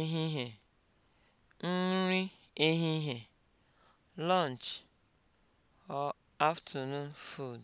ehihie, nri ehihie, lunch or afternoon food